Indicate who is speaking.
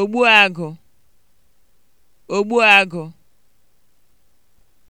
Speaker 1: ogbuagụ ogbuagụ